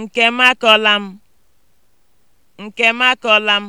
Nke m akọla m! Nke m akọla m!